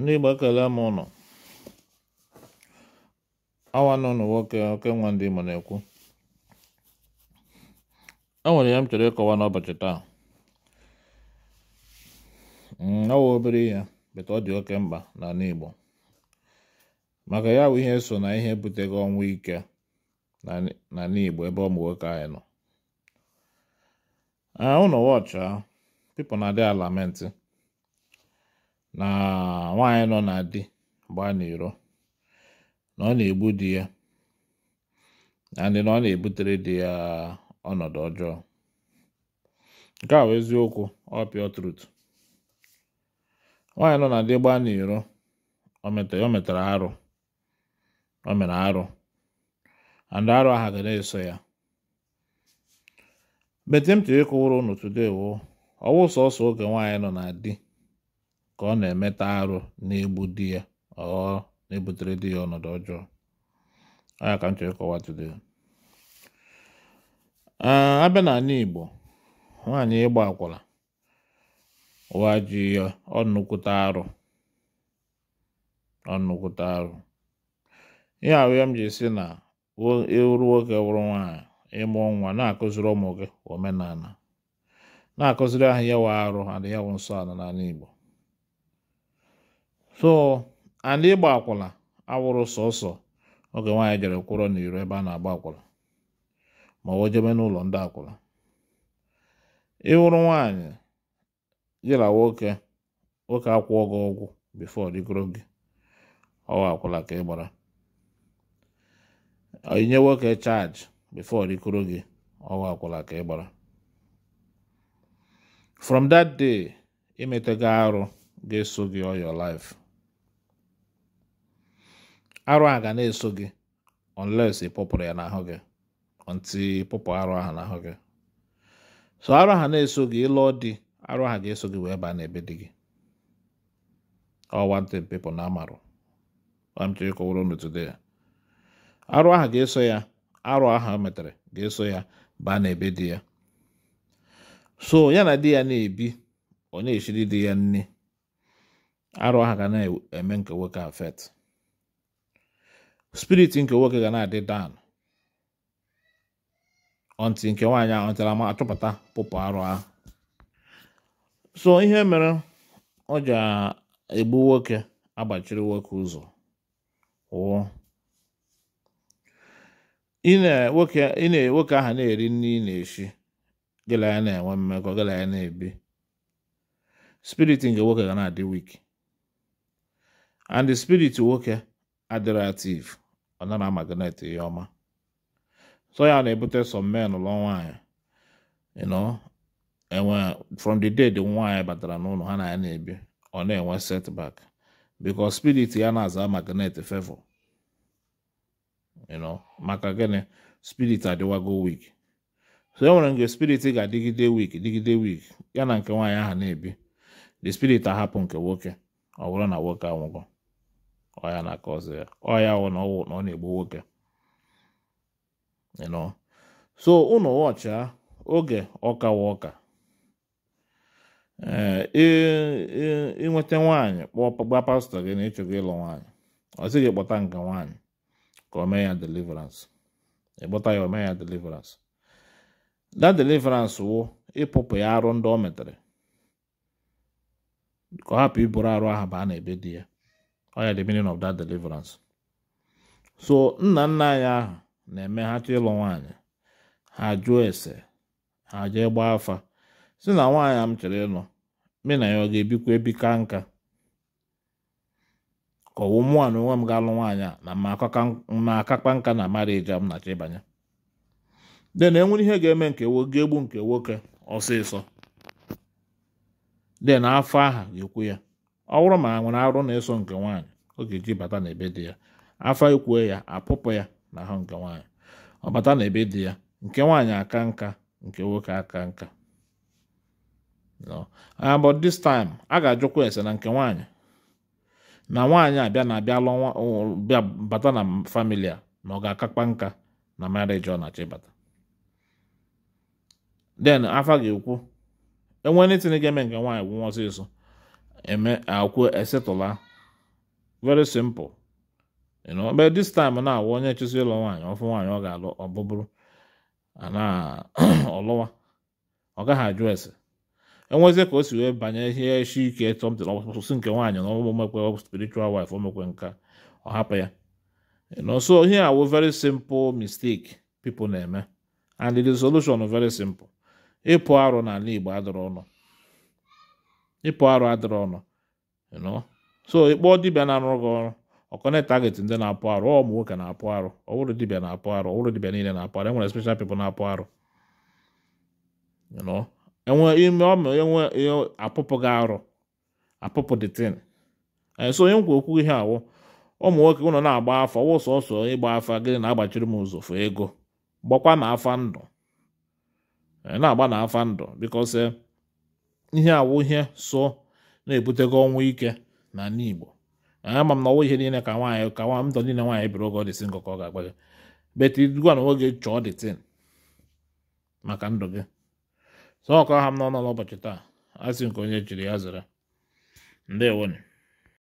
ndị Igbo kelee m nọ. awa nọ nwoke oke nwa ndị ma na-ekwu e nwere ya m chọrọ ịkọwa n'ụbọchị taa ọwa mm, obere ihe beta ọ dị oke mkpa na Igbo maka ya bụ ihe so na ihe butego ọnwụ ike na Igbo ebe ụmụ nwoke anyị nọ ah, ụnọ wọchị na-adị alamentị na nwaanyị nọ na di gbaa n'iro na ọ na-egbu di ya ndị na ọ na-ebutere di ya ọnọdụ ọjọọ nke a bụ eziokwu ọ pure truth nwaanyị nọ na di gbaa n'iro o metara arụ o mere arụ andị arụ ahụ ga na-eso ya bete m tiri ịkụwụrụ unu today wo ọwụ sọsọ oge nwaanyị nọ na di ka ọ na-emeta arụ na-egbu di ya ọ na-ebutere di ya ọnọdụ ọjọọ aya ka m chọrọ ịkọwa abịa n'ala Igbo nwaanyị ịgba akwụla. ụwa ji ya ọnụkwụta arụ arụ ihe ahụ ya m ji si na ịwụrụ e nwoke wụrụ nwaanyị ịmụ nwa na-akụziri ụmụ gị omenala na-akụziri ahụ ya wa arụ adịghị ya wụ nsọ ala n'ala Igbo so ala ịgba akwụla awụrụ sọsọ oge nwaanyị jere kwụrọ n'iro ebe a na-agba akwụla ma ọ jebe n'ụlọ ndị akwụla ịwụrụ nwaanyị jila nwoke nwoke akwụọ gị ọgwụ bifo rigoro gị ọwa akwụla ka ị gbara inye nwoke chaji bifo rikoro gị ọwa akwụla ka ị gbara from that day imetego arụ ga-eso gị all your life arụ a ga na-eso gị unless ịpụpụrụ ya n'ahụ gị nti pụpụ arụ ahụ n'ahụ gị so arụ ahụ na-eso gị ịlụọ di arụ ahụ ga-eso gị wee baa n'ebe di gị ọ wanted people na amarụ amchọrọ ịkọwara unu ya arụ ahụ ga-eso ya arụ ahụ o e metere ga-eso ya baa n'ebe di ya so ya na di ya na-ebi ọ na-eshiri di ya nne arụ ahụ ga na-eme nke nwoke afet spirit nke nwoke ga na-adị dan ọntị nke nwaanyị ahụ ntara ma achọpụta pụpụ arụ ahụ so ihe mere ọ ji egbu nwoke agbachiri nwoke ụzọ wụọ nwoke ahụ na-eri nri ị na-eshi gịla ya na-enwe mmekọ gịla ya na-ebi spirit nke nwoke ga na-adị wik and spirit nwoke adirativ ọ na magnet ya ọma so ya na-ebute some men lụọ nwanyị you know enwe from the day the nwaanyị batara n'ụlọ ha na ya na-ebi ọ na-enwe setback because spirit ya na-aza magnet favor you know maka gịnị spirit adịwago weak so e nwere nke spirit ga-adịgide weak digide weak ya na nke nwaanyị aha na-ebi the spirit ahapụ nke nwoke ọ bụrụ na nwoke anwụgo ọya na-aka ọzọ ya ọya wụ na ọwụ na ọ na-egbu nwoke ịnọ so ụnụ wọcha oge ọkawa ọka ịnweta nwaanyị gbaa pastọ gị na ịchọgo ịlụ nwaanyị ọ sị gị kpọta nke nwaanyị ka o mee ya deliverance ịkpọta ya o mee ya deliverance that deliverance wụ ịpụpụ ya arụ ndị o metere ka ọ hapụ iburu arụ ahụ ba a na-ebe di ya ọya the meaning of that deliverance so nna nna anyị ahụ na-eme ha chọ ịlụ nwaanyị ha jụọ ese ha jee gbaa afa si na nwaanyị m chọrọ ịlụ me na ya ọ ga-ebikwa ebika nka ka ọwụ na onwe m ga-alụ nwaanyị a na ma akakpa nka na marịji m na-achọ ịbanye de na enwere ihe ga-eme nke ga-egbu nke nwoke ọsịsọ de na afọ aha ga-ekwu ya ọ bụrụ ma a nwere arụ na-eso nke nwaanyị ọ ga-eji bata n'ebe dị ya afa ikwue ya apụpụ ya na ahụ nke nwaanyị ọ bata n'ebe dị ya nke nwaanyị aka nka nke nwoke aka nka ah, but this time a ga-ajụkwa ese na nke nwaanyị na nwaanyị abịa na abịa lụọ bịa bata na familia na ọ ga-akakpa nka na marriage ọ na-achọ ịbata then afa ga-ekwu enwere itinye ga-eme nke nwaanyị gwụnwa ọsịsọ eme akwu esetụla very simple you know but this time na awụ onye chụsị ịlụ nwaanyị ọfụ nwaanyị ọ ga-alụ ana ọlụwa ọ gaghị ajụ ese enwezie ka o si wee banye ihe eshi ike tọmtị ọsụsụ nke nwaanyị na ọgbụgbọ mekwe spiritual wife o nka ọ hapụ ya so ihe awụ very simple mistake people na-eme and the solution very simple ịpụ arụ n'ala Igbo adọrọ ọnụ ịpụ arụ adịrị ọnụ so ịkpọ dibịa na-arụ gị ọrụ ọkọne target ndị na-apụ arụ ọ ụmụ nwoke na-apụ arụ ọ bụrụ dibịa na-apụ arụ ọ dibịa niile na-apụ arụ enwere special people na-apụ arụ enwe ime ọmụ enwe apụpụ gị arụ apụpụ so onye nkwa okwu ihe awụ ụmụ nwoke ụnọ na-agba afa wụ sọsọ ịgba afa gịnị na-agbachiri m ụzụ fụ ego gbakwa na afa ndụ e, na-agba na afa ndụ because eh, ihe awụ ihe so na-ebutego ọnwụ ike na ndị Igbo ama m na ọwụ ihe niile ka nwaanyị ka nwa ndụ niile nwaanyị biri oge ọdịsị nkọ ka ọ ga-agbaga beti dugwa na nwoke chọọ dịtin maka ndụ gị sọ ọkọ ha m n'ọnụ n'ụbọchị taa asị nke onye chiri ya zere ndewonu